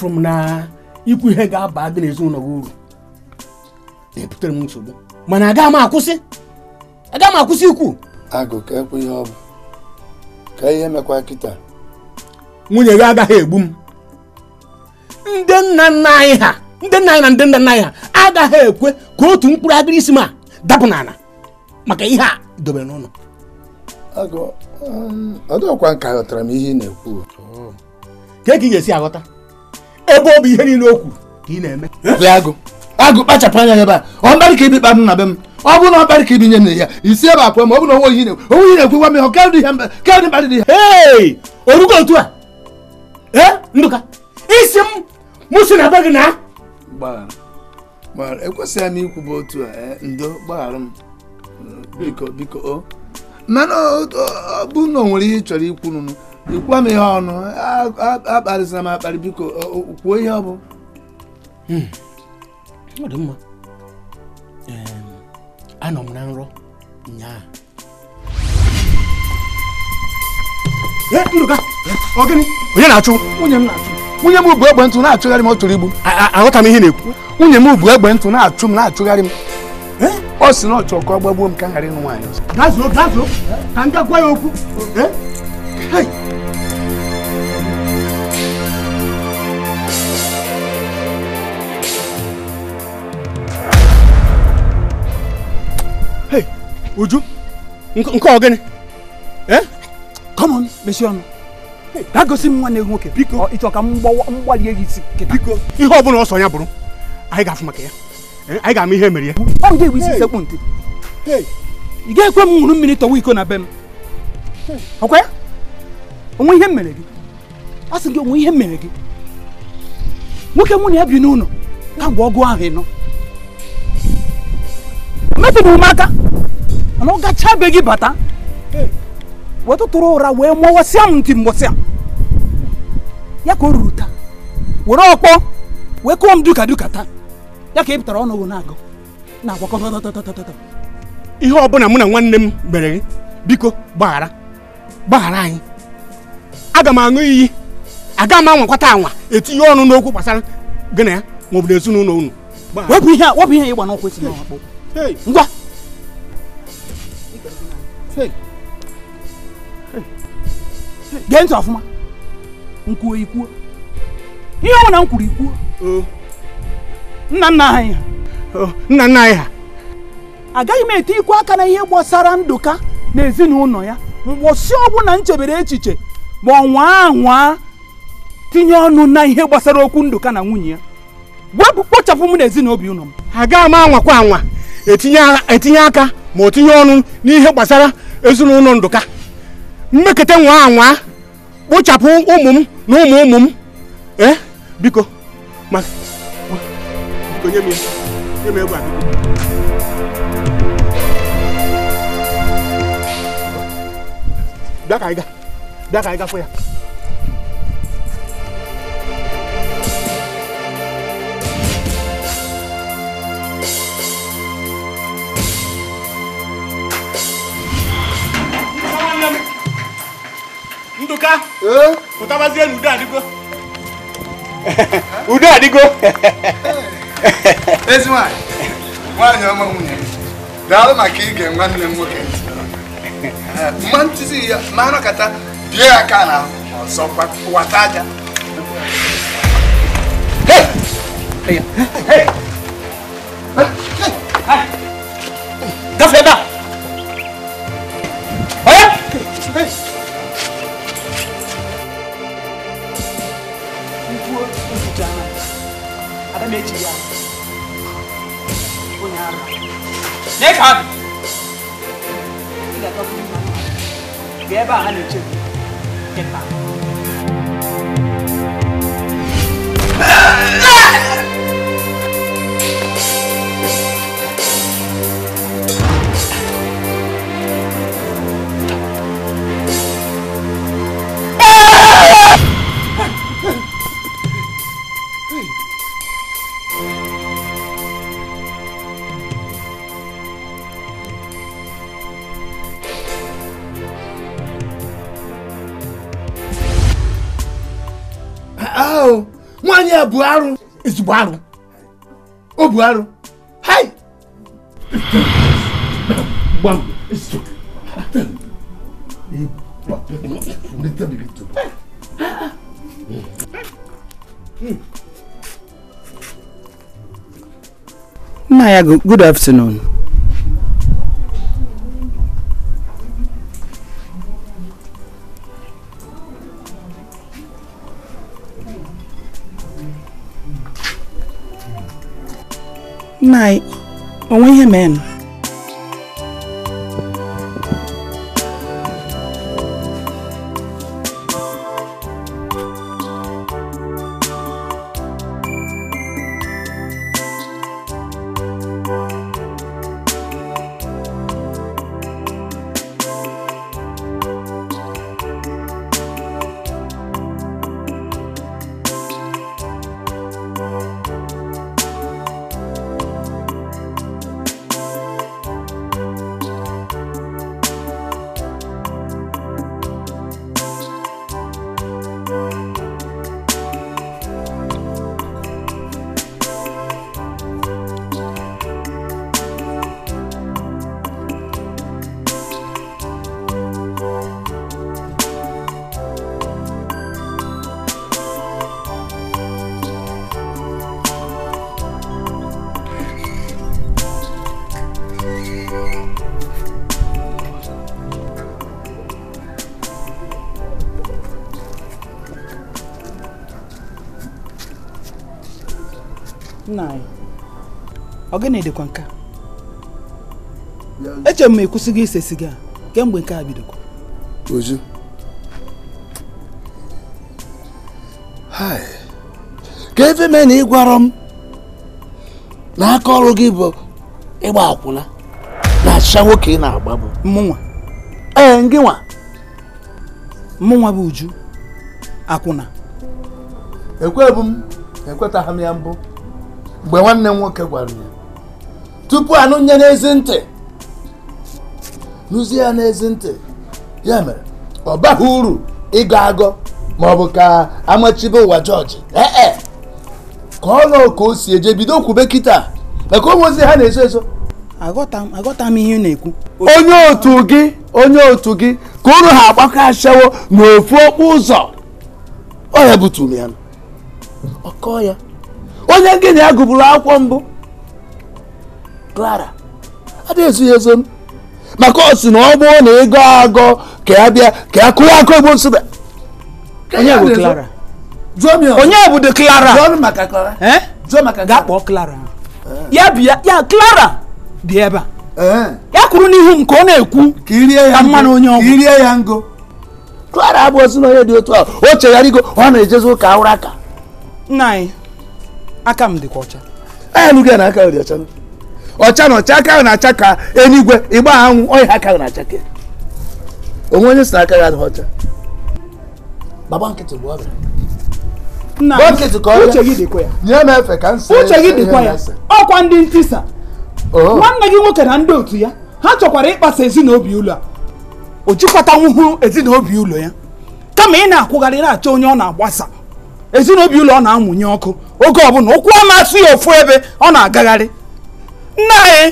afụrụ m na ikwu ihe ga-aba gị n'ezinụlọ gị uru na-ebutere m nsogbu mana agaghị m akwụsị agaghị m akwụsị ikwu agụ ka ekwe ihe ọ bụ ka ihe mekwa kịta nwunye gị agaghị egbu m ndị nna nna anyị ha ndị nna anyị na ndị nna nna anyị ha agaghị ekwe ka otu mkpụrụ agịrị isi m a dapụ n'ala maka ihe a dobere n'ụlọ um, ọ dịkwa ka m ihe ị na-ekwu ka ka ị ga-esi aghọta ebe ọ bụ ihe niile okwu ka ị na-eme agụ agụ kpachapụ anya ebe a ọ ka ibi na be m ọ bụrụ ka ibi nye na ebe m otu a ee ndụka isi m mụ na na ekwesịghị a eh, ndo mana ọ bụ na o nwere ihe ị chọrọ ikwu nụnụ ịkwa m ihe ọnụ akparịsịra m akparị biko kwuo ihe ọ bụ hmm. ọ dị mma anọ m na nrọ nyaa ndụka ọgịnị onye na-achụ nwunye m na-achụ nwunye m bụ egbe ntụ na-achụgharị m ọ tụrụ igbu aghọta m ihe na-ekwu nwunye m bụ egbe ntụ na-achụ m na-achụgharị m ọ sị na ọ chọọ ka ọ gbagbuo m ka m ghara ịnụ nwaanyị ọzọ gazuo gazuo ka m ga ya okwu Uju nke ọ gịnị come on mesie ọnụ gaa gosi m nwanne gị nwoke biko ịchọ ka m gbalie gị isi biko ihe ọ bụla ọsọ ya bụrụ anyị ga-afụ maka ya eh, anyị ga-ama ihe mere ya ọ ga-ebu isi sekpụ ntị ị ga-ekwe m ṅụrụ mmiri tọwa iko na be m ọkwa ya onwe ihe mere gị a sị gị onwe ihe mere gị nwoke mụ na ya bi n'ụlọ ka ọgụ ahụ ịnọ mepụrụ m aka mana ọ gachabe gị bata eh. wetụtụrụ ụra wee mụwasịa m ntị mbọsịa ya ka o ruru taa were ọkpọ wee kụọ m duka duka taa ya ka ị pụtara ọnụ na-agụ na-agwakọ ihe ọbụla mụ na nwanne m mere biko gbaghara gbaghara anyị aga m aṅụ iyi aga m anwakwata anwa etinye ọnụ n'okwu gbasara gị na ya maọbụ na ezinụlọ unu wepụ ihe a wepụ ihe ịgba n'ọkwa esi n'ọkpụ ngwa gee ntị ọfụma nkwuo ikwuo ihe ọ na m kwuru ikwuo oh. nna nna anyị ha oh, agaghị m ete ikwu aka na ihe gbasara ndụka na ezinụlọ ya mgbọsi ọbụla m chebere echiche ma ọ nwaa anwa tinye ọnụ na ihe gbasara okwu ndụka na nwunye ya wepụ kpochapụ m na ezinaobi ụlọ m agaghị m anwakwa anwa etinye aka ma o tinye ọnụ n'ihe gbasara ezinụlọ ndụka mmeketa nwa anwa kpochapụ ụmụ m na ụmụ ụmụ m ee biko ma nye m nye m biko bịa ka anyị ga bịa ka anyị gafụ ya udoka utabazie na udo adigo udo adigo ezi nwanyị nwanyị ọma nwunye daalụ maka ige nwanne m nwoke mma ntụzi ya ma anọkata bie ya aka na ọzọ wata aja gafe ebe a Buharu is Buharu. Oh, Buharu. Hi! Maya, good afternoon. night onwe ihe men nna anyị ọ gị na-edekwa nke eche m ma gị ise siga kemgbe nke a bidokwa ozu ka efe mee na ịgwarọ m na aka ọrụ gị bụ ịgba akwụna na achịcha nwoke ị na-agba bụ mmụnwa ee ngị nwa mmụnwa bụ uju akwụna ekwebụ m ekwetaghị m ya mbụ mgbe nwanne m nwoke gwara ya tupu anụnye n'ezi ntị nụzie ya n'ezi ntị ya mere ọ baghị uru ịgọ agọ ma ọ bụ ka amachibe ụwa jọji ee e, ka ọ nọ ka o si eje bido kwube kịta maka ụmụ ozi ha na ezo eso agọta m ihe na-ekwu onye otu gị onye otu gị ka ụlọ ha agbakọ ashawo n'ofu okpu ụzọ ọ ya butu ya ọkọ ya onye gị na ya gụburu akwụkwọ mbụ Clara adịghị ezughị ezo maka ọ na ọ bụrụ na ego agọ ka ya bịa ka ya kụrụ akụ egbo nsụda onye bụ Clara onye bụ de Clara gaa kpọọ Clara ya bịa ya Clara dị ebe a ya kwuru n'ihu m ka ọ na-ekwu ka mmanụ onye ọgwụ Clara abụ ozi na onye dị otu ahụ o chegharịgo ọ na-ejezi ụka ụra aka nna anyị aka m dịkwa ọcha alụghị ya na aka dị ọcha ọcha na ọcha aka ahụ na-acha ka enigwe ịgba anwụ ọya aka ahụ na-acha ka onwe onye si na aka ya adịghị ọcha baba nkịtị bụ ọrịa uche gị dịkwa ya ọkwa ndị ntisa nwanne gị nwoke na ndị otu ya ha chọkwara ịkpasa ezinaobi ụlọ a o jikọtanwuhụ ezinaobi ụlọ ya kama ị na-akwụgharị na-achọ onye ọ na-agbasa ezinobi ụlọ ọ na-amụnye ọkụ oge ọbụla ụkwụ ọ asụ ya ofu ebe ọ na-agagharị nna anyị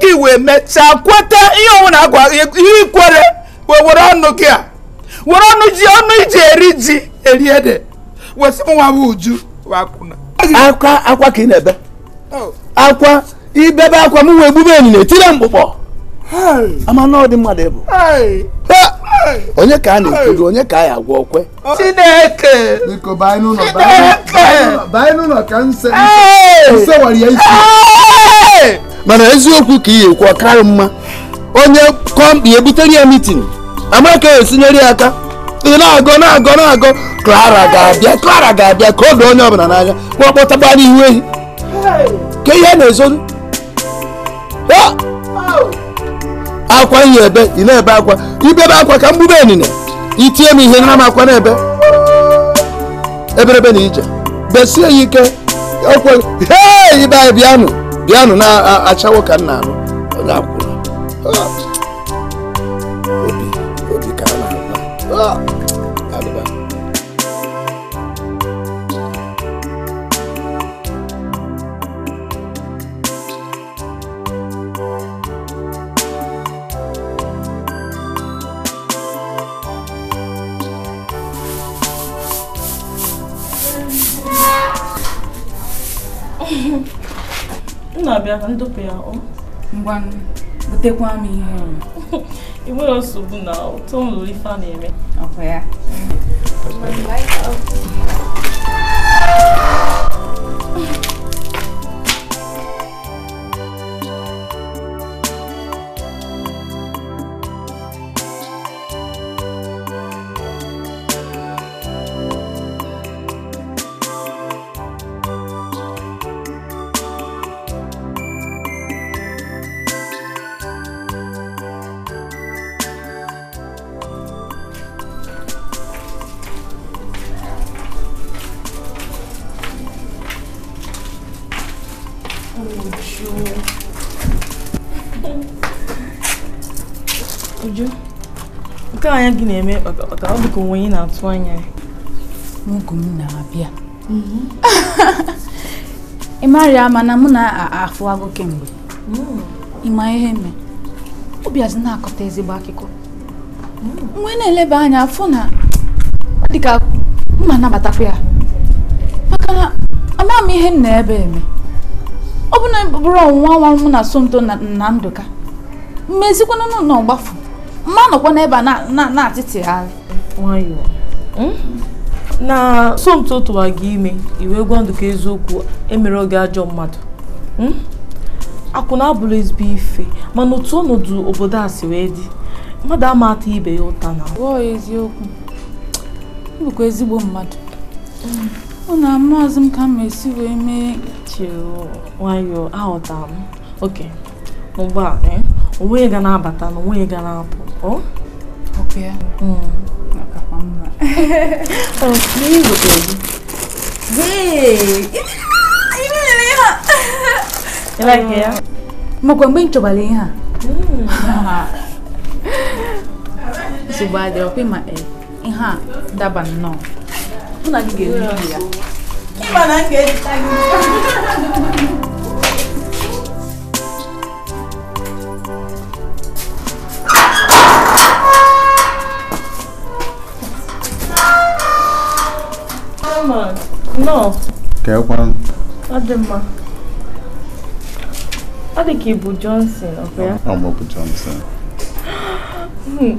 gị wee mechaa kweta ihe ọnwụ na-agwa ihe ikwere wee were ọnụ gị a were ọnụ ji ọnụ iji eri ji eri ede wesị m nwa uju akwa akwa ka ị na-ebe oh. akwa ibebe akwa m wee gbube enyi na etire mkpụkpọ ama na mmadụ ịbụ onye ka a na-ekedo onye ka a ya agwa okwe Chineke biko banye n'ụlọ banye n'ụlọ ka nse nsewara ya isi mana eziokwu ka ihe ekwu ọkarị mma onye kọmpi ebutere ya mitin amaka esinyere ya aka ị na-agọ na-agọ na-agọ Clara ga-abịa Clara ga-abịa ka odo onye ọbụla n'anya kpọkpọtagba n'ihu ehi ka ihe na-ezoru akwa ihe ebe ị na-ebe akwa ibebe akwa ka mgbube enine itie m ihe nara m akwa na-ebe eberebe na ije besie ya ike ọkwa hee ibe anyị bịanụ bịanụ na-achawo ka nna anụ na ah. obi obi ka a na bịa ka ya ọ ngwa butekwa m ihe enwere nsogbu na ụtọ nlụrụ ife a na-eme ọkwa ya Uju. Uju. Nke anya gị na-eme ọ dị ka onwe ị na-atụ anya ya. N'oge m na-abịa. Ị marịa ama na mụ na-afụ agụ kemgbe. Ịma ihe me. Obi azụ na-akọta ezigbo akụkọ. Mgbe na-eleba anya afọ na ọ dị ka mma nabatakwa ya. Maka na amaghị m ihe m na-ebe eme. ọ bụ na bụrụ ọnwụnwa nwa mụ na Somto na Ndụka mmezikwana n'ụlọ ọgbafu mma nọkwa n'ebe a na-atịtịgharị nwayọọ hmm? na Somto tụwa gị ime iwe gwa Ndụka eziokwu emere oge ajọ mmadụ hmm? akwụna abụrụ ezigbo ife mana otu ọnọdụ obodo a si wee dị mmadụ ama ibe ya ụta na eziokwu bụkwa ezigbo mmadụ hmm. una maazi m ka m esi wee mee che nwayọọ aghọtara m oke ụgbọala onwe ga na-abata na onwe ga na-apụ makwa mgbe m ihe a ma eh. ihe a daba nnọọ mụ na gị ga-eri ya Ọ dị ka ị Johnson, Ọ bụ Johnson. Hmm.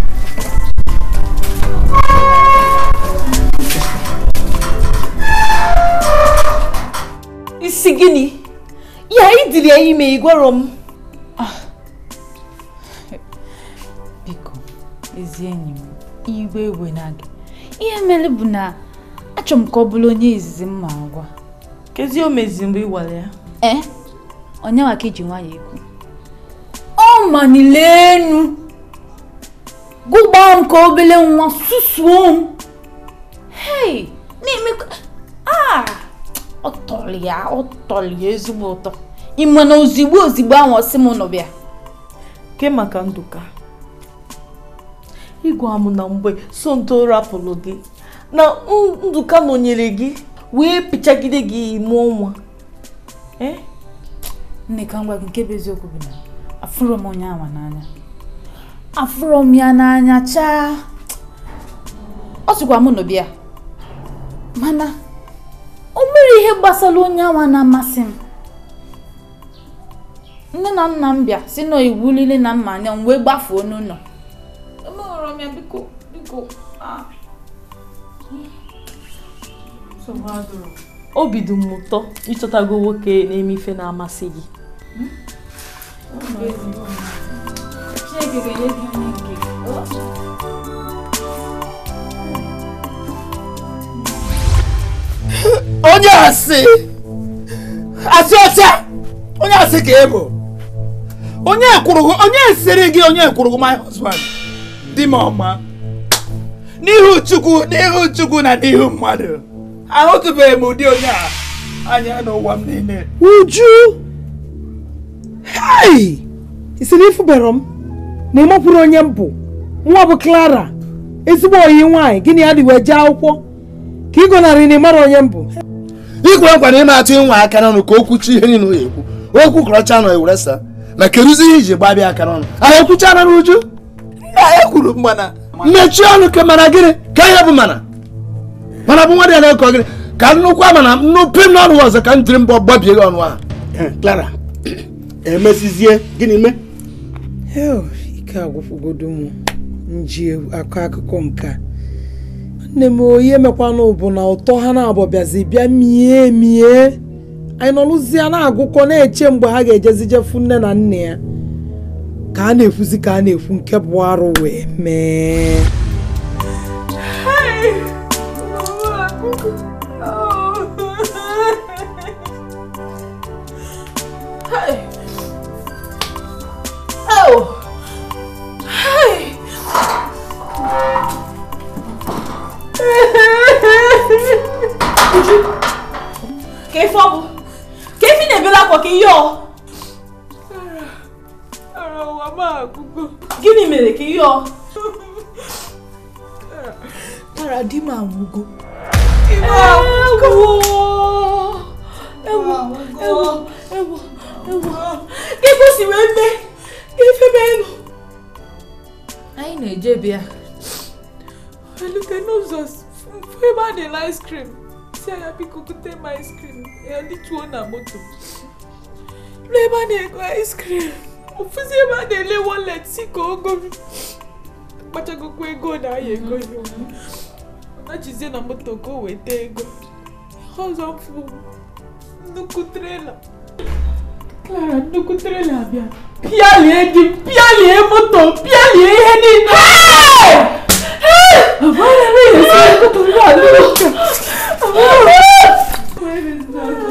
isi gịnị ya ịdịrị ya ime igwero m ah. biko ezi enyi m igwe ewe na gị ihe mere bụ na achọ m ka ọ bụrụ onye izizi m ma agwa kezi o mezi mgbe ịwara ya ee eh? onyewa ka iji nwayọ ekwu ọ manile enu gụgbaa m ka obele nwa susuo m hei na-emekwa ah ọ tọrọ ya ọ tọrọ ya ezigbo ụtọ ị ma na ozigbo ozigbo ahụ ọsị m nọ bịa ke maka ndụka ịgwa m na mgbe sonto rapụrụ gị na nduka nọnyere gị wee pịchagide gị ime ọnwa. E? nne ka ngwa gị nke bụ eziokwu bụ na afụrọ m onye awa n'anya afụrọ m ya n'anya chaa ọ sịkwa mụ nọ bịa mana o ihe gbasara onye awa na-amasị m nne na nna m bịa si na iwu niile na mma anya m wee gbafuo n'ụlọ obi dị m ụtọ ịchọtago nwoke na-eme ife na-amasị gị hmm? Chineke ga-enye gị onye asị asị ọcha onye asị ka ị bụ onye ekwurughị onye siri gị onye ekwurughị my husband di m ọma n'ihu chukwu n'ihu chukwu na n'ihu mmadụ ahụtụbeghị m ụdị onye a anya n'ụwa m niile uju isi na ifubere m na ịmakwuru onye m bụ nwa bụ clara ezigbo oyi nwanyị gịnị ya dị wee jee akwụkwọ ka ị gọnarị na ị mara onye mbụ ikwe nkwa na ị atụ nwa aka n'ọnụ ka o kwuchi ihe niile ya ekwu okwu kọrọcha nọ eweresa na keruzi ihe iji gbabịa aka n'ọnụ ahụ ekwucha na n'uju nna ya e kwuru mana mechie ọnụ ka mana gịnị ka ihe bụ mana mana bụ nwa dị ya na-ekọ gịnị ka nnukwu ama na m n'ọnụ ọzọ ka m jiri mbọ gbabie gị ọnụ ahụ eh, Clara emesizie gịnị mee ike agwụfụgodo m ji akọ akụkọ nke a nne m oyi emekwanụ bụ na ụtọ ha na-abụ bịa mie mie anyị nọlụzie na-agụkọ na-eche mgbe ha ga-ejezijefu nne na nna ya ka a na efuzi ka a na efu nke bụ arụ wee mee mi yọ. ara wa máa gbogbo. gịnị mere ka ị yọ. ara di m anwụgo. ịwọ agwụgo. ewo ewo ewo ewo ka e kwesịrị eme ka efebe elu. anyị na-eje bịa. elute n'ụzọ fụ ebe a na-ele ice cream si anya biko gote m ice cream ya lituo na moto. Blema na-ego ice cream ofuzi ebe a na-ele wallet si ka ogo m akpachagokwa ego na aya ego ya na jizie na moto ka o weta ego ọzọ mfu nnukwu trela Clara nnukwu trela abịa pịalie di m pịalie moto pịalie ihe niile Where is that?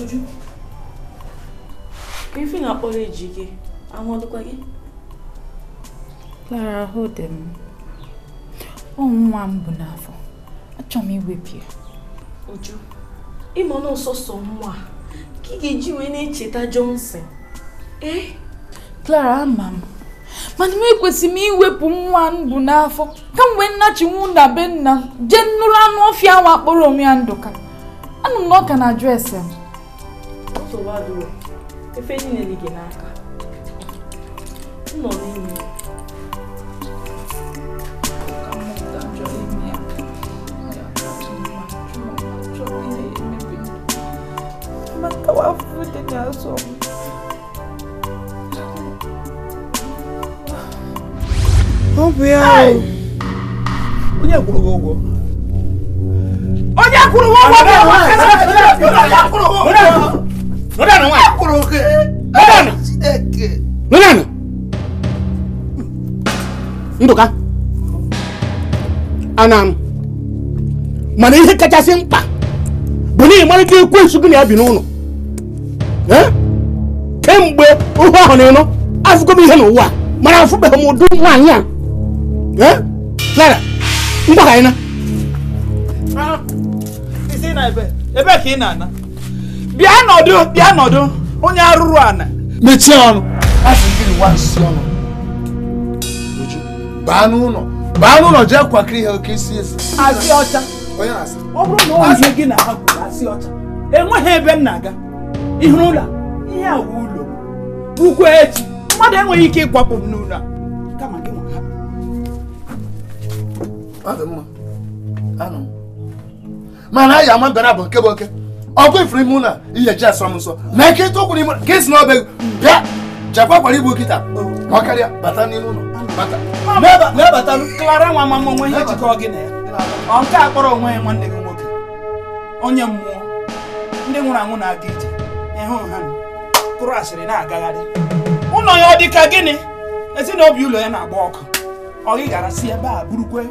Ọjụ ka ife na-akpọrọ eji gị, anwụọdụkwa gị? Lara, ahụ dị m. Ọ nwa m n'afọ. Achọ m iwepụ ya. Ọjụ ịmụ na nwa ka ị na-echeta Johnson. Ee? Clara, ama m. mana m ekwesị m iwepụ nwa m n'afọ kamgbe nnachinwu na m jee nnụrụ anụ ọfịa nwa akpọrọ onwe anụ na na m nsogbu adịrọ efe niile dị gị n'aka nọ n'ime mata wafu dị n'azụ m ọ bụ ya onye kwụrụ gị ụgwọ onye kwụrụ ụgwọ onye kwụrụ ụgwọ nodani wa nodani nodani nduka anam mana ihe kachasị mkpa bụ na ị mara ka ekwensu gị na-abi n'ụlọ kemgbe ohu ahụ na ịnụ afụgo m ihe n'ụwa mana afụbeghị m ụdị nwaanyị a Clara mgbaghanyị ah, na ebe ka ị na-ana bịa nọdụ bịa nọdụ onye arụrụ ana mechie ọnụ asị nwa nsị ọnụ uju baa n'ụlọ baa n'ụlọ jee kwakiri ihe oke isi esi asị ọcha onye ọ bụrụ na ọ ihe gị na ha kwuru asị ọcha enweghị ebe m na-aga ihu ụlọ ihe a wụ ụlọ ukwu echi mmadụ enweghị ike ịkwapụ m n'ụlọ kama gị nwa ha mana anyị ama mbịara bụ nke bụ oke ọkwa ifuru ime ụlọ iyechi asọ m nsọ na ike tụkwuru ime ka esi n'ọbịa bịa jakwa kwara igbu nkịta ma karịa bata n'ime ụlọ na-abata klara nwa mama onwe ihe jikọ gị na ya ọ nke a kpọrọ onwe ya nwanne gị nwoke onye mmụọ ndị nwụrụ anwụ na-aga ije ịhụ ha kụrụ asịrị na-agagharị ụlọ ya ọ dị ka gịnị ezinụlọ ụlọ ya na-agba ọkụ ọ gị gara si ebe a burukwe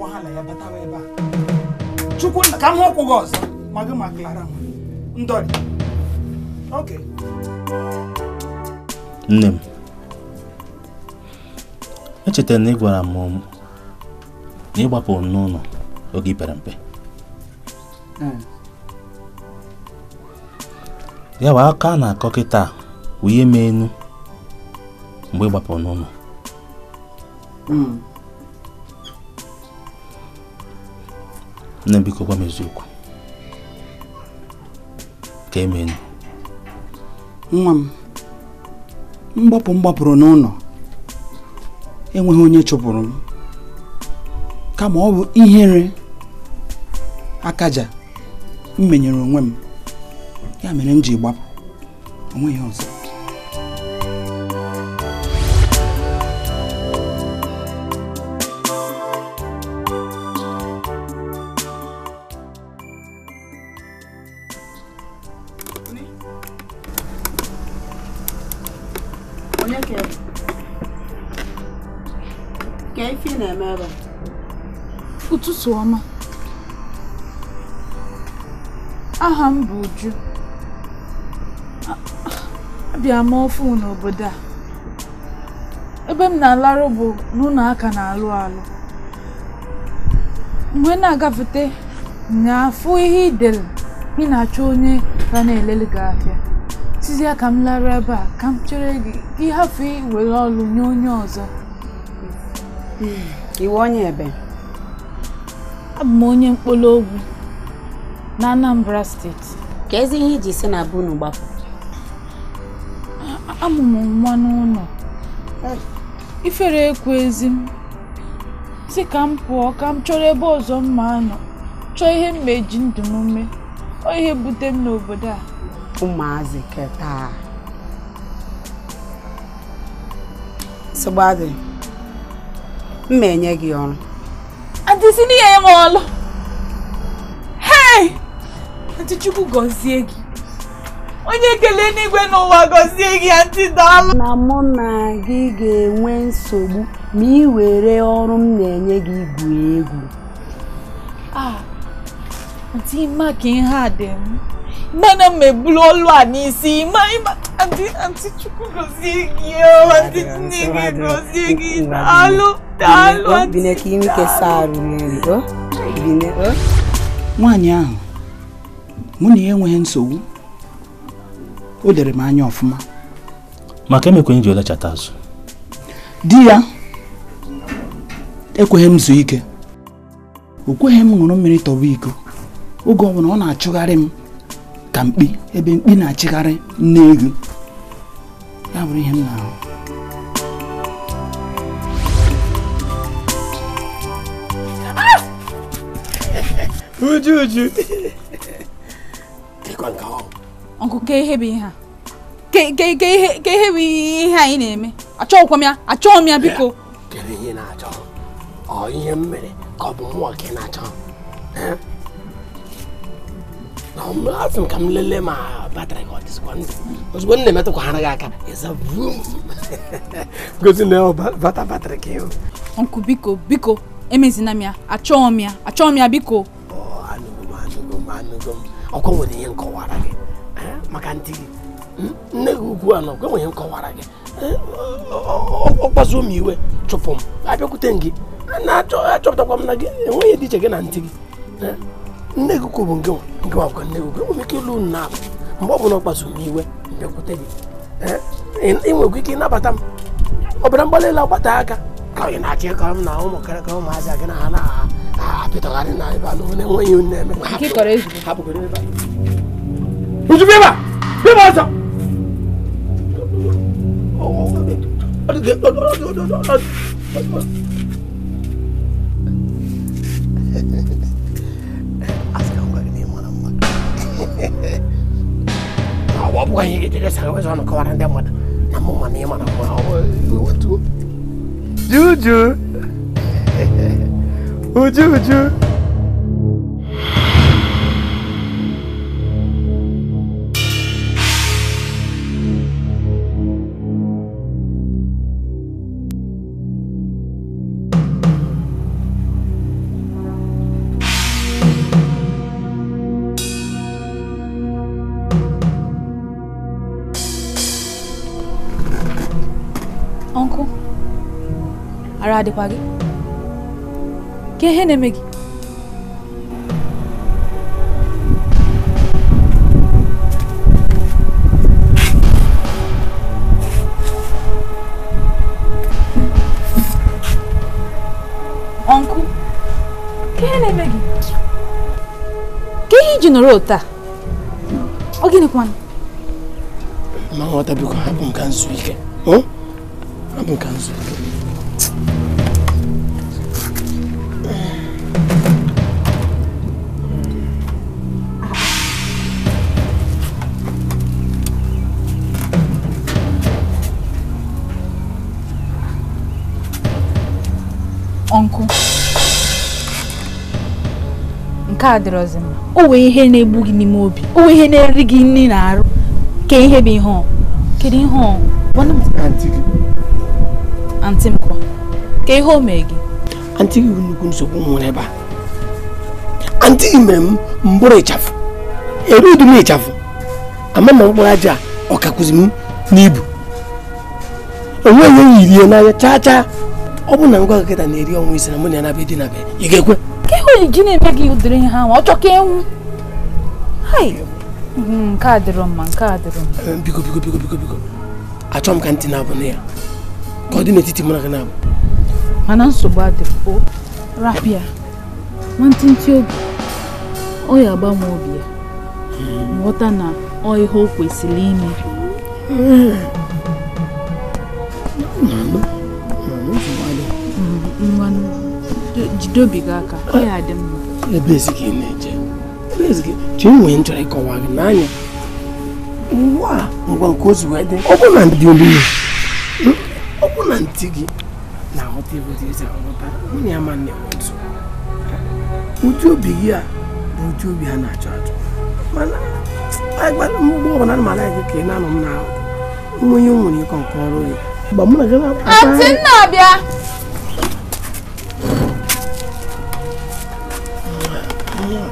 wahala ya batawa ebe a chukwu ka m hụkwụ gị ọzọ maklara ndọrị oke nne m echetara na ị gwara m na ị gbapụrụ n'ụlọ oge pere mpe hmm. ya bụ aka na akọ kịta ihe hmm. m enu mgbe ị gbapụrụ n'ụlọ nne biko gwa m eziokwu nwa m mgbapụ m gbapụrụ n'ụlọ enweghị onye chụpụrụ m kama ọ bụ ihere akaja m menyere onwe m ya mere m ji gbapụ onweghị ọzọ ọma aha m bụ Uju abịa m ofu n'obodo a ebe m na-alarụ bụ n'ụlọ aka na-alụ alụ mgbe na-agafete na-afụ ihe idere ị na-achọ onye ka na-elele gị ahịa ka m lara ebe a ka m chere gị ịhafụ iwere ọlụ nye onye ọzọ hmm, iwe onye ebe Abụ m onye mkpụrụ ogwu na Anambra steeti. Ka ezi ihe iji si na be unu gbapụ? Amụ m nwa n'ụlọ. Ifere ekwu ezi m si ka m pụọ ka m chọrọ ebe ọzọ mma anọ chọọ ihe m eji ndụ m ọ ihe bute m n'obodo a. Ụmụazị keta sịgbadị m ma enye gị ọrụ ndị si n'ihe ma ọlụ. Hey! Chukwu gọzie gị. Onye ekele n'igwe n'ụwa gọzie gị ndị daalụ. Na mụ na gị ga-enwe nsogbu ma ị were ọrụ m na-enye gị igwu egwu. Ah, Aunty ka ihe a dị m. Mana m ebulu olu a n'isi ịma ịma. Antị Chukwu gozie gị antị Nnege gozie gị daalụ daalụ nwaanyị ahụ mụ na ya enweghị nsogbu o lere m anya ọfụma maka emekwenye ji olechata azụ di ya ekweghị m zuo ike o kweghị m ṅụrụ mmiri tọwa iko oge ọ bụla ọ na-achụgharị m ka mkpi ebe mkpi na-achịgharị nne ego How would him ah! Uju, Uju. Kekwa nke ahụ. Ọnkụ kee ihe bụ ihe a. Kee ihe bụ ihe anyị na-eme. Achọghịkwa m ya, achọghị m ya biko. Kedu ihe na-achọ? Ọ ihe m ka ọ bụ mmụọ na afọ m ka m lelee ma batrị ka ọ dịzikwa ndụ ozugbo m na-emetụkwa hara gị aka gosi na bata batrị ka ịhụ nkụ biko biko emezina m ya achọghị m ya achọghị m ya biko anụgo oh, m anụgo m anụgo m ọkwa nwere ihe nkọwara gị eh, maka ndị hmm? gị nne gị ukwu anọ ọkwa nwere ihe nkọwara gị eh, ọkpazuo m iwe chụpụ m abịakwute m gị na-achọpụtakwa m na gị enweghị dị iche ge na eh, ntị gị nne gị kwubu nke wakwa nne gị enwere ike ịlụ unu na-abụ mgbe ọ bụla ọ kpasuru m iwe bịakwute gị ị nwekwa ike ịnabata m ọbara mgbalị elu agbata aka ka ị na achị ịkọrọ m na ụmụ ka ụmụazị gị na ha na-apịtagharị na ebe na-enweghị onye na-eme ozugbo ọ bụghị ihe ga-ejere sa wezọ nọkọwara ndị mmadụ na mụ na ị mara mma juju uju uju adịkwaghị gị ka ihe na-eme gị ọnkụ ka ihe na-eme gị ka ihe iji nọrọ taa ọ gịnịkwanụ ma nghọta biko hapụ nka nzu ike hapụ nka nzu ike nke a dịrọzi mma o nwee ihe na-egbu gị n'ime obi o nwee ihe na-eri gị nri na arụ ke ihe bụ ihe ọ kedu ihe ọ antị m kwa ka ihe o mee gị antị gị nnukwu nsogbu nwere ebe a antị gị mere m mbụrụ ịchafụ erudi m ịchafụ ama na mkpụrụ aja ọ ọkakwụzi m n'ibu onweghị enyi rie n'anya chaa chaa ọ bụ na ngwa nkịta na-eri ọnwa ise na mụ na ya na be dị na be ị ga-ekwe ogbenye ji na-eme gị ụdịrị ihe ahụ ọ chọkọ ewu enwu nke a dịrọ mma nke a dịrọ mma eh, biko biko biko biko biko achọ m ka ntị na-abụ na ya ka ọ dị n'etiti mụ na gị na-abụ mana nsogbu adịrọ rapịa nwantịntị obi ọ ya agbanwe obi ya nghọta hmm. na ọ ihe o kwesịrị ime hmm. dobiga aka ọ adị dị mma ebe gị na-eje ebe nwee nchọrọ ịkọwa gị n'anya ngwa ngwa nke ozu wee dị ọ na ndị ọ bụ na ntị gị na-aghọta nwunye nne otu ụdị obi gị a bụ ụdị obi a na-achọ achọ mana mgbe ọbụla mara gị ka ị na-anọ m na nwere ịkọ nke ọrụ gị mụ na gị na yàn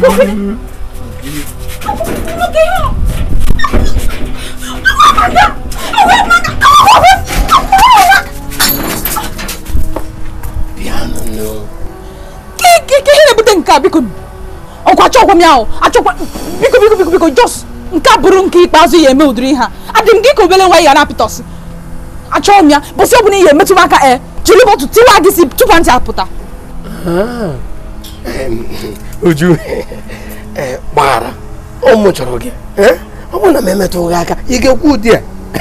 Oh, God. m ya achọkwa biko biko biko biko jos nke a bụrụ nke ikpeazụ ya eme ụdịrị ha adị m gị ka obele nwa ya na-apịtọsị achọghị m ya bụsị ọ bụla ihe metụ m aka e jiri bọtụ tiwa gị si tupu ntị apụta uju ah, e, gbara ụmụ chọrọ gị e, ọ bụrụ na m emetụ gị aka ị ga-ekwu ụdị a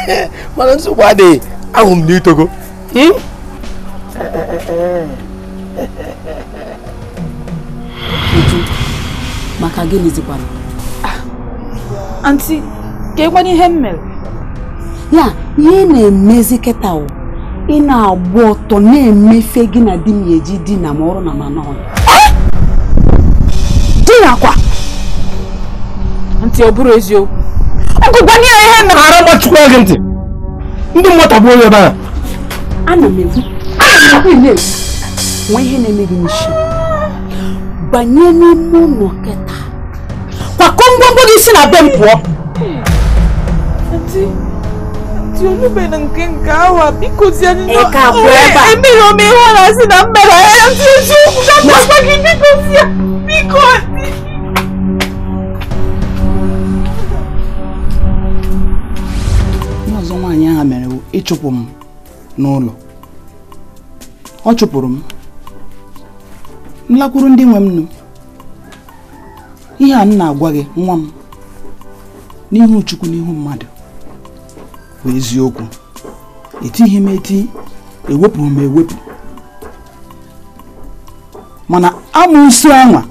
mana nsogbu adịghị ahụ m n'itogo hmm? eh, eh, eh, maka gịnịzikwana anti ah, ka ihe m mere ya ihe na-emezi kịta ị na-agba ọtọ na-emefe gị na di m eji di na ma ọrụ na mana ọnụ di na ntị ọ bụrụ eziokwu ọgụgwa ya ihe mere ara gbachukwu gị ntị ndị mmụta bụ onye ebe ana m ekwu ihe na-eme gị banye n'ime ụlọ kịta ngwongwo gị si na be m pụọ olube na nke nke awa bikozie emere m ihe ọ na-asị na mmere ahịa ndị eziokwu ga-agwagwa gị bikozie biko ọzọ nwaanyị ahụ mere ịchụpụ m n'ụlọ ọ chụpụrụ m m lakwuru ndị nwe m nụ ihe a m na-agwa gị nwa m n'ihu Chukwu n'ihu mmadụ bụ eziokwu etighị m eti ewepụrụ m ewepụ mana amụsị anwa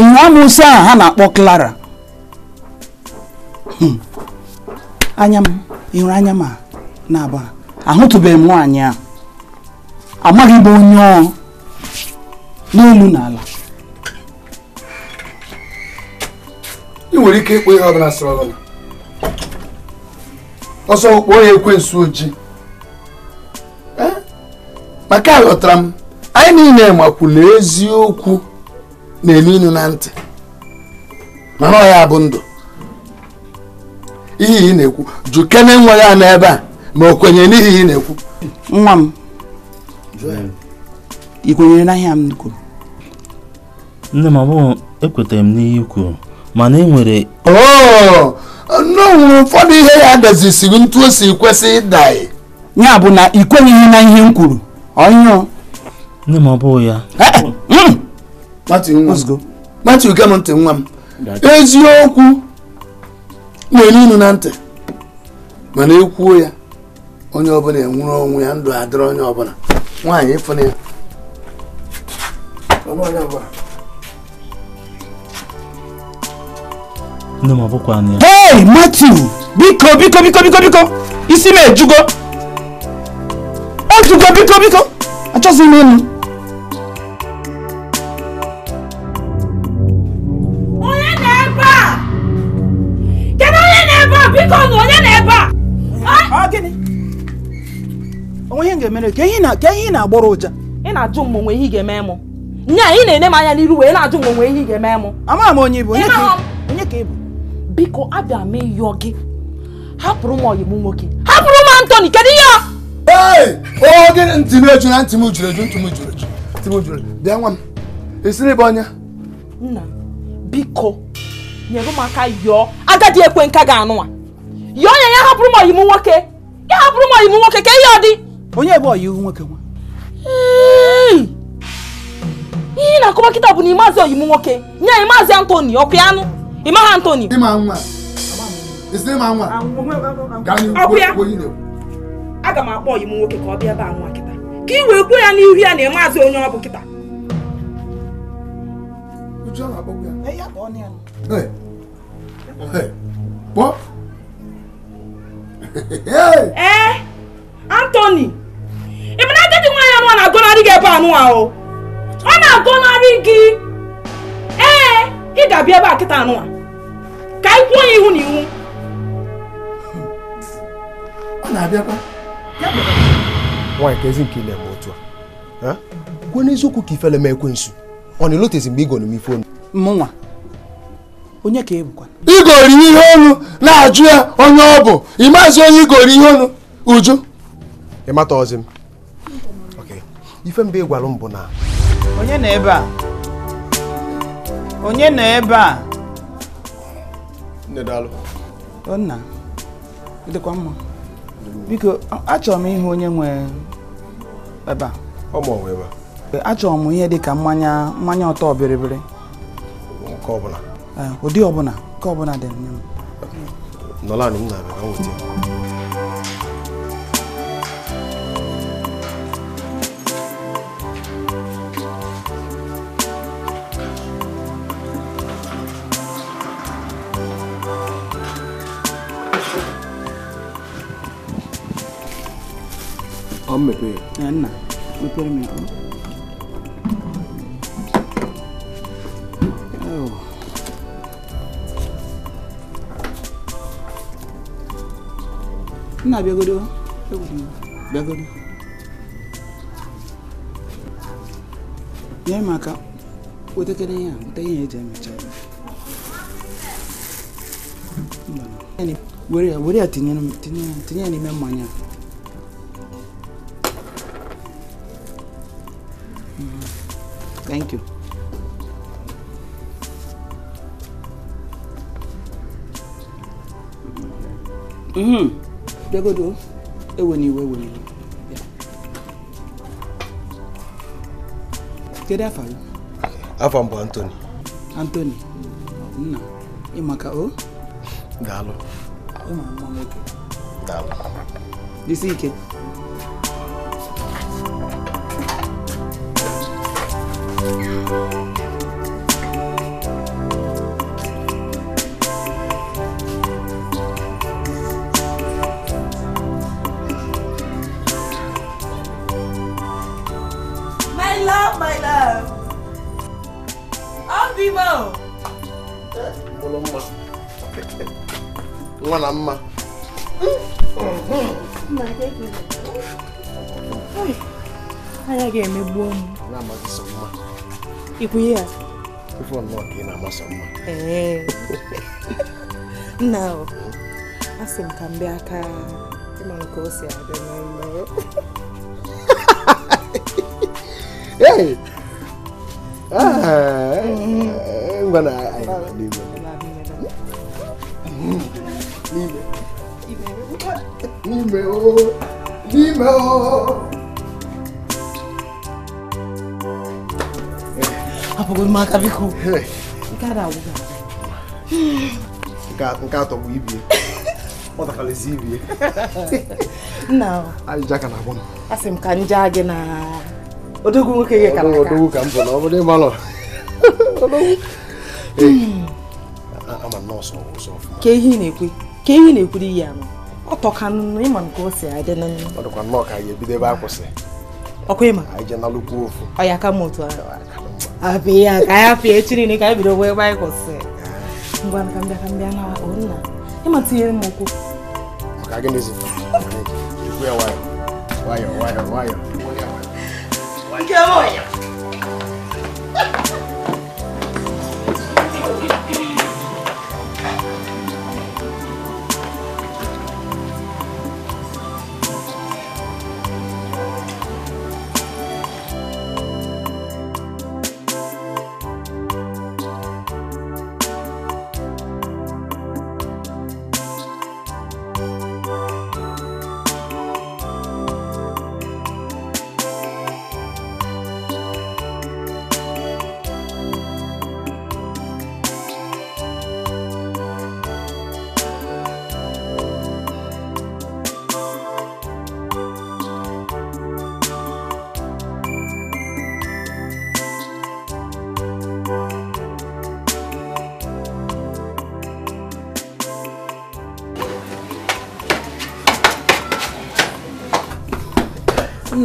ihe amụsị a ha na-akpọ Clara hmm. anya m ịhụrụ anya m na ahụtụbeghị m nwaanyị a amaghị bụ onye ọ n'elu n'ala ị nwere ike ịkpọ ihe ọbụla sịrị ọbụla ọsọ kpọọ ya nso ojii maka aghọtara m anyị niile makwula eziokwu na-eme inu na ntị mana ọ ya bụ ndụ ihe ị na-ekwu jụ nwa ya n'ebe a ma o kwenyere n'ihi ị na-ekwu nwa m ị n'ahịa m kwuru nne m abụghị ekwetaghị m n'ihe kwuru mana e nwere oh, ụfọdụ ihe ya dezisiri ntu o si kwesị ịda ya bụ na ị kwenyeghị na ihe m kwuru ọnyụọ nne m ọ bụghị ya eh, eh, mm. matu gem ntị nwa m eziokwu na-enu inu na ntị mana ekwuo ya onye ọbụla enwere onwe ya ndụ adịrị onye ọbụla nwaanyị ịfụna ya Hey, matthew biko biko biko biko biko isi m ejugo ojugo biko biko achọzi m ịnụ onye na-ebe a kedu onye na biko na onye na-ebe a onwe ihe ga-emere ka ihe ị na-agbọrọ ụja ị na-ajụ m onwe ihe ị ga-eme m nya ị na-ene m anya n'iru wee na-ajụ m onwe ihe ị ga-eme m amaghị m onye ị onye ka ị bụ biko abịa m ịyọ gị hapụrụ m ọyị m nwoke hapụrụ m Anthony kedu ihe ee oge ntị m eju na ntị m juru eju ntị m juru eju ntị m juru eju bịa nwa m esiri bụ ọnya nna biko nyere m aka yọọ agadi ekwe nka ga-anụwa yọọ ya ya hapụrụ m ọyị m nwoke ya hapụrụ m ọyị nwoke ka ihe ọ dị onye ebe ọyị ihu nwoke nwa ihe na-akọwa kịta bụ na ị maazị ọyị m nwoke nye anyị maazị Anthony ọkụ ya anụ Emma Anthony. Emma Anwa. His name Anwa. Ọkụya. Aga m akpọ ọyị m nwoke ka ọ bịa ebe a nwa kịta. Ka ị wee kwuo ya n'ihu ya na ị maazị onye ọ bụ kịta. Ee, Anthony, ị na agadi nwaanyị anụ a na-agọnarị gị ebe anụwa o. Ọ na-agọnarị gị. Ee, ị ga-abịa ebe a kịta anụwa ka anyị kwuo ya ihu na ihu ọ na-abịakwa nwaanyị ka ezi nke na-eme otu a kwuo n'eziokwu ka ifele m ekwensu ọ na-elotezi mgbe ịgọrọ m ife onu mụnwa onye ka ebukwa igori ihe onu na-ajụ ya onye ọ bụ ị maazị onye igori ihe onu uju ị mata ọzi m ife mbe ị gwara m bụ na onye nọ ebe a onye nọ ebe a nne daalụ nna dịkwa mma biko achọrọ m ihe onye nwe ebe a ọ ma ọmụ ebe a achọrọ m ihe dị ka mmanya mmanya ọtọ biribiri nke ọbụla eh, ụdị ọbụla nke ọbụla dị nne m nọlanị m na-abịa ka m weta ka m mepee ya nna mepere m nna oh. bịagodo bịagodo nye m aka wetekere ihe a weta ihe eji emecha were ya tinyere m tinye ya n'ime mmanya a bịagodo ewena iwe ewena iwe kedu afa gị afa m bụ Anthony Anthony nna ịmaka o daalụ ịma mma nwoke daalụ dịsi ike Thank you. na mma m ikwunye ya nna asị m ka m bịa aka ka o si abịa n'ụlọ ah, eh, eh, bro. apụgoro não aka biko nke atọ bụ ibie ọtakalịzi ibie nna ajụjụ aka na-agbọ m asị m ka m jaa gị na odogwu nwoke gị kara odogwu ka m bụ não? ọ bụrụ ịmalọ ama nọọsụ ọsọ ka ihe ị na-ekwu ka ihe ị na-ekwuru ihe anọ ọtọka nnu ịma nke o si adị na nnu ọdụkwa nnọọ ka anyị ebido ebe a kwụsị ịma anyị je n'alụkwu ofu ọ ya aka m otu ahụ ya ka anyị afọ echi ka anyị bido ebe anyị kwụsị ngwa ka mbịa ka mbịa na nna ịma tinyere m okwu maka nwayọọ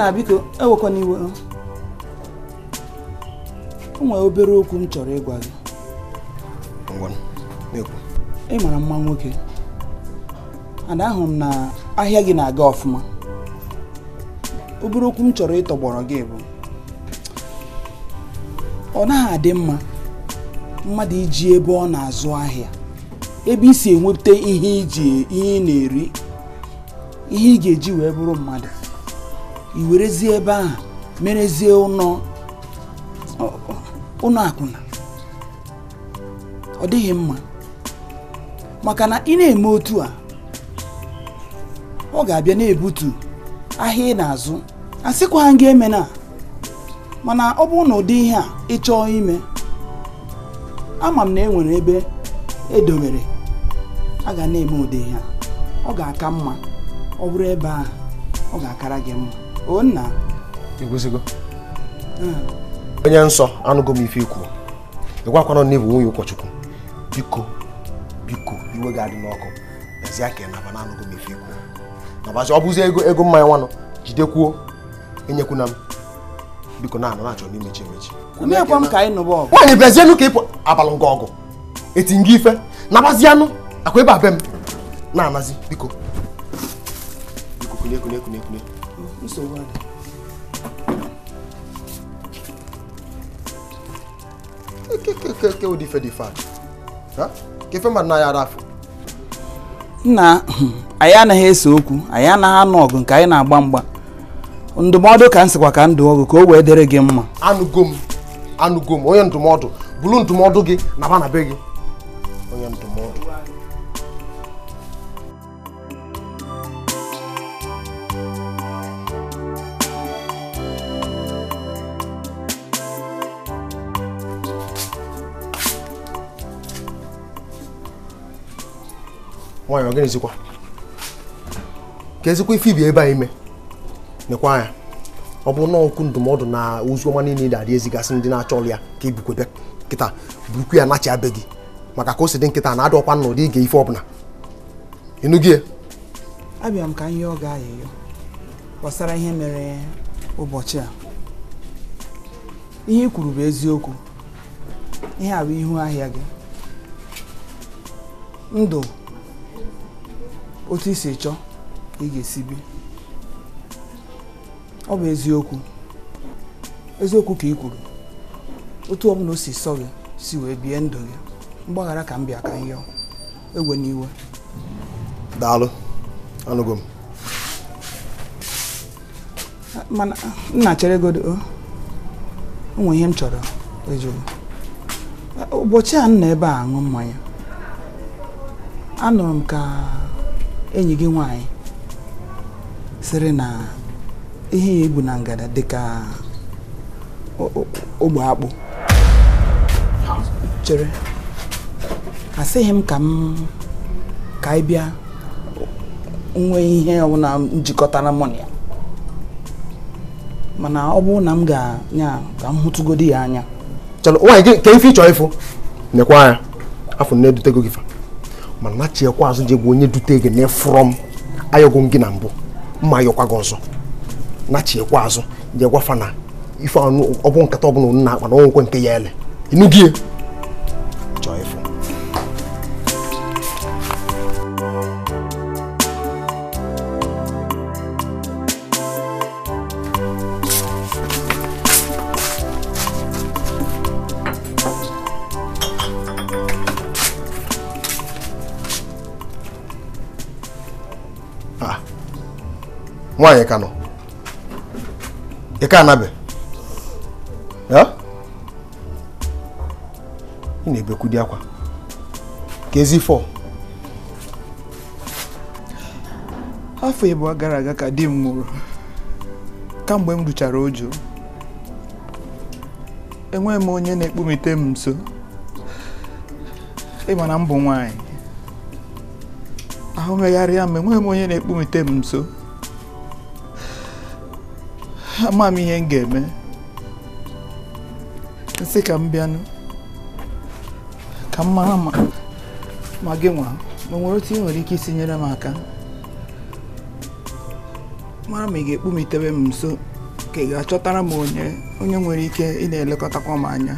nna biko ewekwana iwe obere okwu m chọrọ ịgwa gị ị mara mma nwoke ana ahụ m na ahịa gị na-aga ọfụma obere okwu m chọrọ ịtọgbọrọ gị bụ ọ naghị adị mma mmadụ iji ebe ọ na-azụ ahịa ebe isi si enweta ihe iji ihe ihe ị ga-eji wee bụrụ mmadụ i werezie ebe ahụ merezie ụnọ akwụna ọ dịghị mma maka na ị na-eme otu a ọ ga-abịa na-ebutu ahịa ị na-azụ a sịkwa gị eme na mana ọ bụrụ na ụdị ihe a ị chọọ ime ama m na e nwere ebe edobere a ga na-eme ụdị ihe a ọ ga-aka mma ọ bụrụ ebe a ọ ga-akara gị mma onna. nna igwuzigo onye nsọ anụgo m ife ikwu ịgwakwana na ịbụ nwunye ụkọchukwu biko biko iwe ga-adị n'ọkụ ezie ka naba na anụgo m ife ikwu nabazi ọ bụzi ego ego mmanya nwanụ jidekwuo enyekwana m biko na anọ na-achọ imechi. emechi nwaanyị bịazienụ ka ịpụ abalị ngọ ọgụ eti nga ife nabazianụ akwa ebe a be m na-anazi biko biko kunye kunye kunye kunye nsogbu adị ụdị nna anyị anaghị ese okwu anyị anaghị anụ ọgụ nke anyị na-agba mgba ndụmọdụ ka m sịkwa ka ndụ ọgụ ka o wee dịrị gị mma anụgo m anụgo m onye ndụmọdụ bụrụ ndụmọdụ gị na ba na be gị nwaanyị ọ gịnịzikwa ka ezikwa ife ibi ebe a ime nekwa anya ọ bụ na okwu ndụmọdụ na ozi ọma niile na-adị ezigasị ndị na-achọ ọrụ ya ka ebukwebe nkịta burukwu ya nachi abe gị maka ka o si dị nkịta na adọkwa na ụdị ige ife ọbụla ịnụgị e? abịa m ka ihe ọ ga-ayịyọ gbasara ihe mere ụbọchị a ihe ikwuru bụ eziokwu ihe a bụ ihu ahịa gị ndụ otu isi chọọ ị ga-esi bi ọ bụ eziokwu eziokwu ka ị kwuru otu ọbụla o si sọ gị si wee bie ndụ gị mgbaghara ka m bịa ka m yọọ egwe n'iwe daalụ anụgo m mana nna chere godo onwe ihe m chọrọ ụbọchị a nna ebe a aṅụ mmanya anụrụ m ka enyi gị nwanyị sịrị na ihe ya ebu na ngada dị ka ogbe akpụ chere asịghị m ka m ka anyị bịa nwee ihe ọbụla njikọtara mụ na ya mana ọ bụrụ na m ga-anya ka m hụtụgodi ya anya chọrọ nwaanyị ka ife ị ịfụ nekwa anya afọ na-edutego gị fa mana chiekwa azụ egwu onye dute gị na m ayọgo gị na mbụ mma ayọkwa gị ọzọ chiekwa azụ ji gwafa na ife ọnụ ọ bụ nkata ọbụla na akpa na ọnwụkwe nke ya ele ịnụgie nwaanyị ka nọ ị ka anabe ị na-ebekwudi akwa ka ezi fọ afọ ịbụ gara aga ka di m nwụrụ kamgbe m ruchara ojo enweghị m onye na-ekpumite m nso ịma na m bụ nwaanyị ahụ megharịa m enweghị m onye na-ekpumite m nso ama m ihe m ga-eme nsị ka m bịanụ ka m mara ma gị nwa nwere otu ị nwere ike isi nyere m aka mara ma ị ga-ekpumitewe m nso ka ị ga-achọtara m onye onye nwere ike ị na-elekọtakwa m anya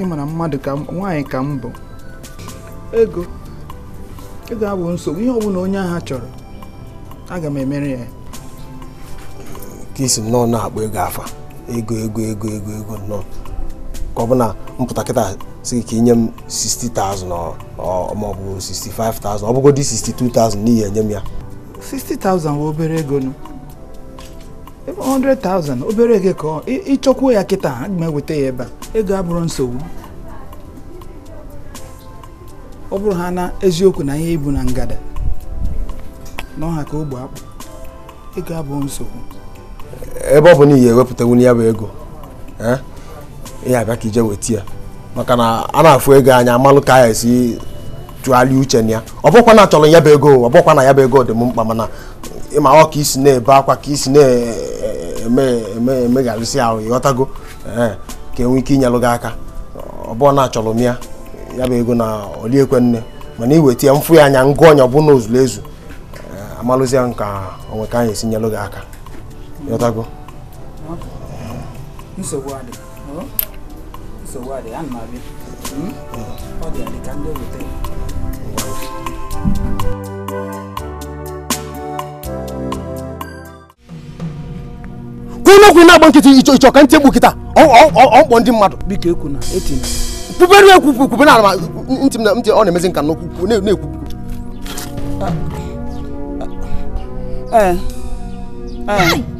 ị mara mmadụ ka nwaanyị ka m bụ ego ego abụ nsogbu ihe ọ bụla onye ha chọrọ aga m emere ya ka isi nnọọ na-akpọ ego afa ego ego ego ego ego nnọọ ka ọ bụ na mpụta kịta si ka inye m 60,000 maọbụ 65,000 ọ bụgodị 62,000 n'ihi enye m ya 60,000 bụ obere ego nụ 100,000 obere ego ka ịchọkwuo ya kịta aga m eweta ya ebe a ego abụrụ nsogbu ọ bụrụ ha na eziokwu na ihe ibu na ngada n'ọha ka ogbe akpụ ego abụọ nsogbu ebe ọ bụ na ihe ewepụtawu ya bụ ego ihe eh, abịa ka ije weta ya maka na a na-afụ ego anya amalụ ka ya esi tụgharịa uche na ya ọ bụkwa na achọrọ ya bụ ego ọ bụkwa na ya bụ ego dị m mkpa mana ịma ọ ka isi na-ebe akwa ka isi na-emegharịsị ahụ ịghọtago eh, ka enwe ike inyelụ gị aka ọ bụọ na achọrọ m ya ya bụ ego na oliekwe nne mana iweta ya mfụ ya anya ngụ ọnya ọbụ na ozuru ezu eh, amalụzie nka onwe ka anyị esi nyelụ gị aka ịghọtago hmm. nsogbu adị hmm? nsogbu adị ana m abịa hmm? ọ dị ka ndị weta kwuna okwu na-agba nkịtị ịchọ ka ntị egbu ọmkpọ ndị mmadụ biko ekwuna na ala ntị ọ na na